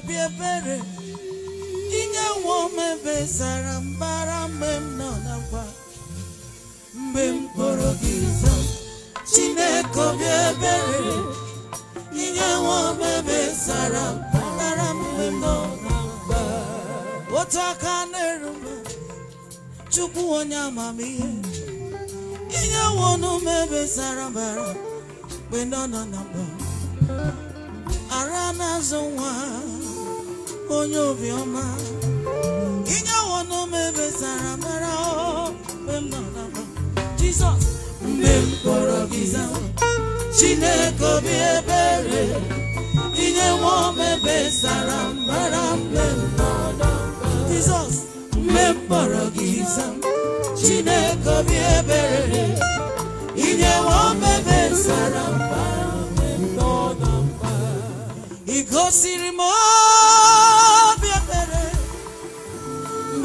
obi ebere inye nwa omebe sara mbara mgbe m nọ nakwa mgbe m kpọrọ gị zọ chineke obi ebere inye nwa omebe sara mbara mgbe m nọ nakwa otu aka na-eru m chukwu onye amamihe inye nwa omebe sara mbara mgbe nọ na nakwa ara na-azụ nwa onye obiọma inye wọnụm ebesara mara mgbe m nọ na Jizọs mgbe m kpọrọ gị zawa Chineke obi ebere inye nwa m ebesara mara mgbe m nọ na Jizọs mgbe m kpọrọ gị zawa Chineke obi ebere inye nwa m ebesara mara mgbe m nọ na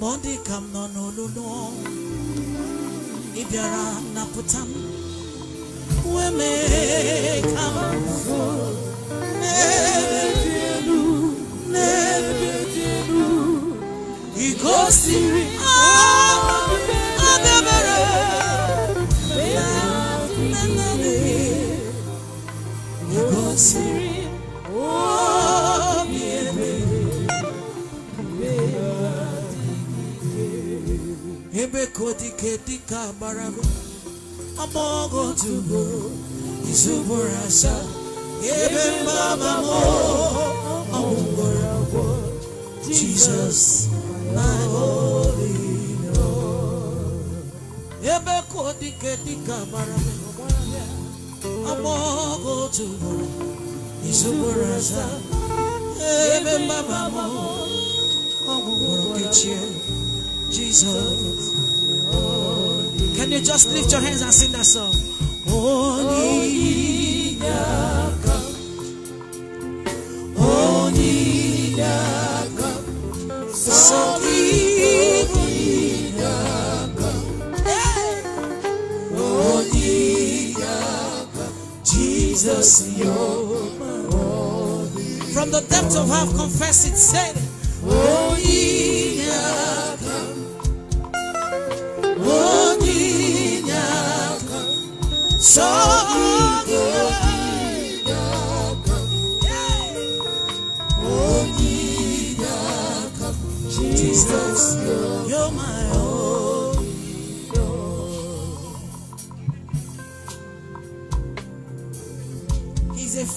mọdị ka m nọ n'olulu ị bịara na m wee mee ka m n'ebe dị elu n'ebe dị elu ị gosiri adabere ah, ị gosiri Ebe dịka gbarago amaogotugo amogo ugboro isuburasa. ebe mama mo, ọgwụgwọrọ agwọ jizọs my holy Lord Ebe dịka gbarago amaogotugo amogo ugboro isuburasa. ebe mama mo, ọgwụgwọrọ kechie Jesus. Can you just lift your hands and sing that song? Oni Daka. Oni Daka. Soli Jesus, you're From the depths of heart, confess it, say it.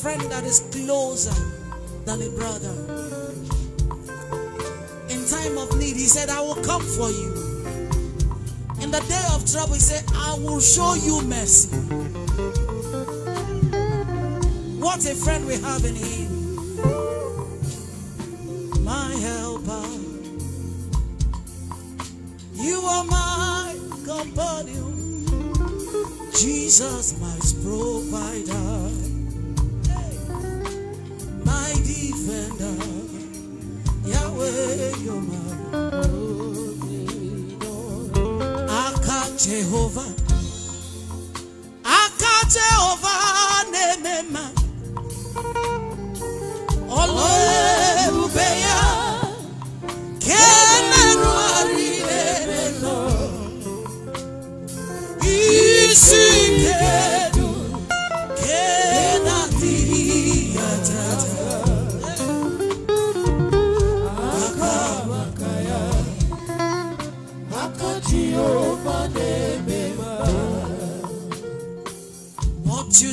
friend that is closer than a brother. In time of need, he said, I will come for you. In the day of trouble, he said, I will show you mercy. What a friend we have in him. My helper. You are my companion. Jesus, my provider. Yahweh, you're my Jehovah. Aka Jehovah, Nemema.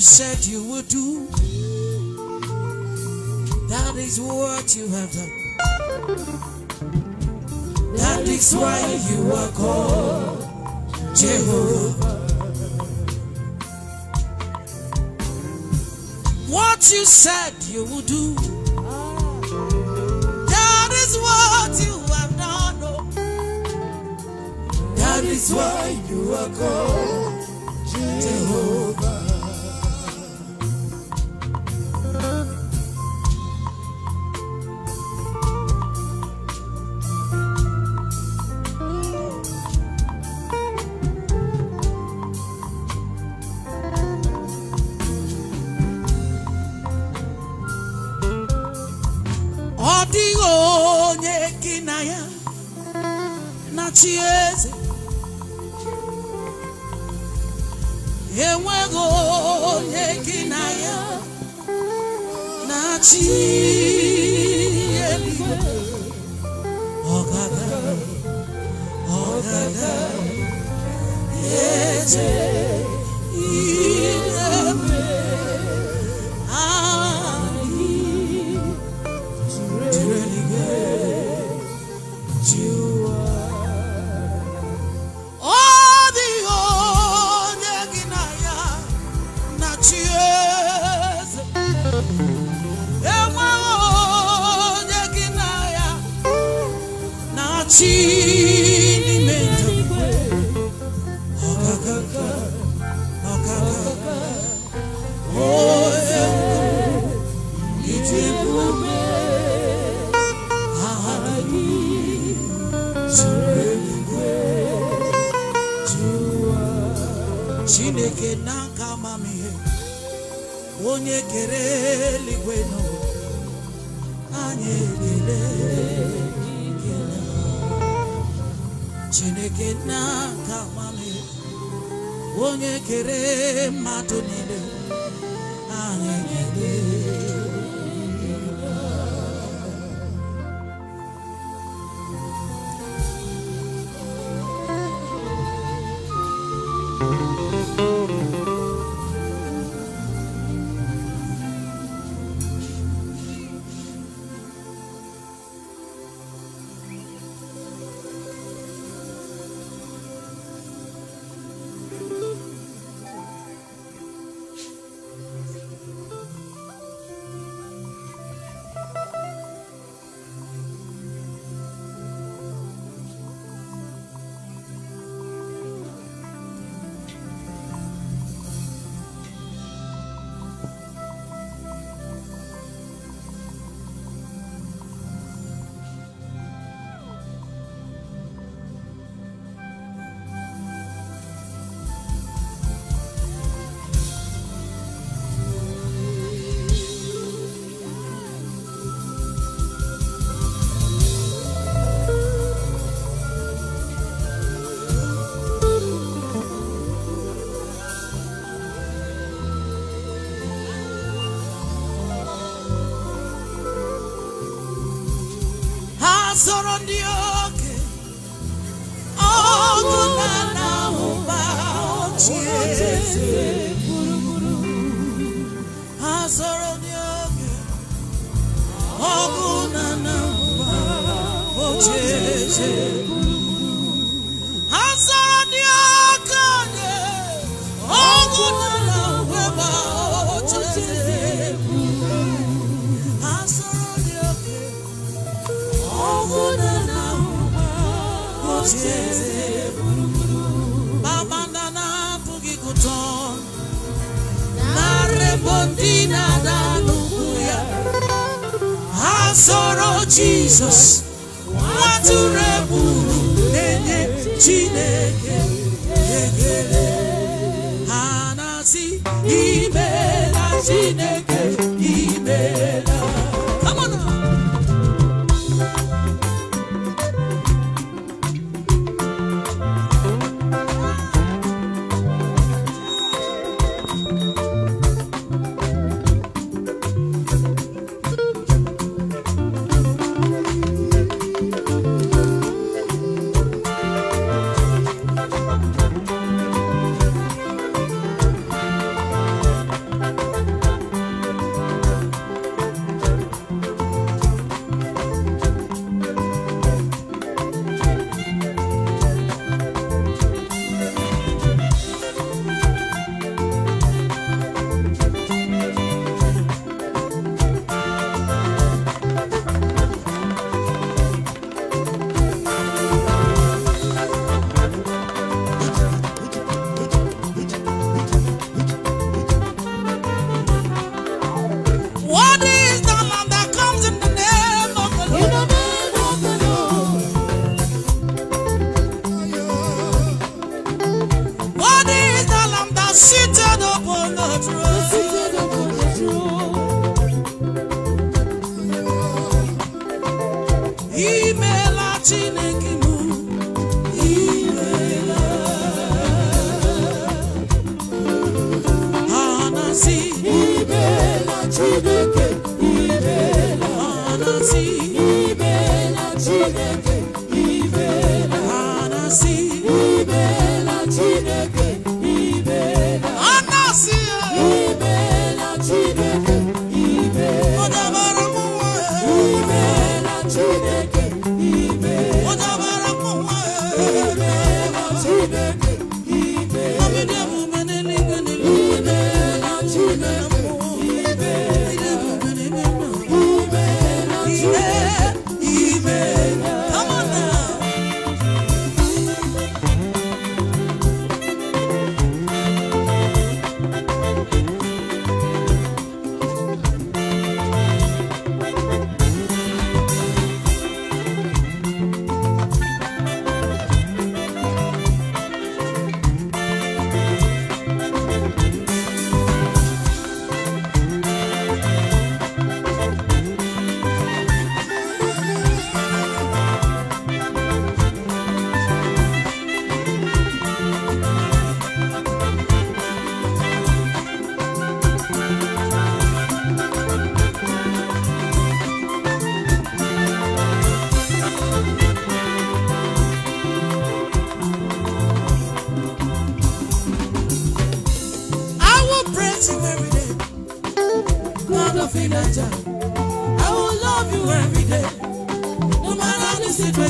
you said you would do. That is what you have done. That is why you are called Jehovah. What you said you would do. That is what you have done. Oh. That is why you are called Jehovah. Machieze enweghị onye na ya na-achị eluigwe enweghị na ya onye kere eluigwe n'ụwa anyị ekele chineke n'aka amamihe onye kere mmadụ niile anyị sọrọ ndị ọgụ na na-ahụba ochie sọrọ ọgụ na na ochie Jesus, babanda na apụghị gụtọ narebo ndị na-ada n'ugwu chineke imela chineke imela chineke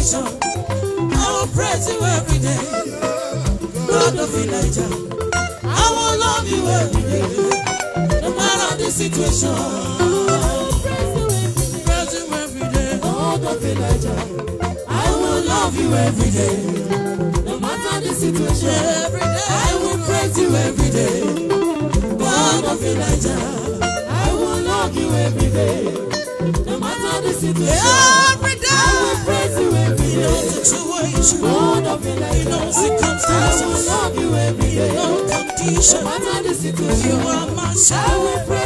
nation. I will praise you every day. God of Elijah, I will love you every day. No matter the situation. I will Praise you every day. God of Elijah, I will love you every day. No matter the situation. Every day. I will praise you every day. God of Elijah, I will love you every day. No matter the situation, every day I will praise you every day. Situation, God of in circumstances, I will love you every day. No condition, no matter the situation, you are my shepherd. I will praise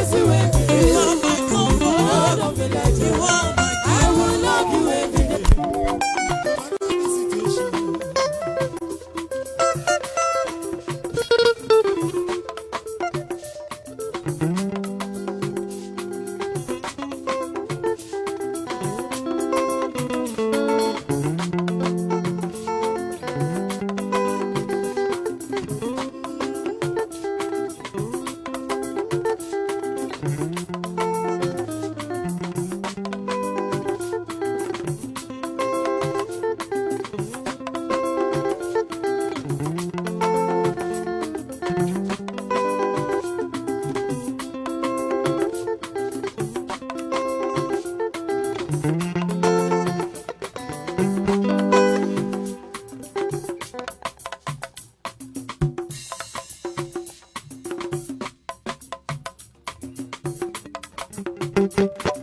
Thank you.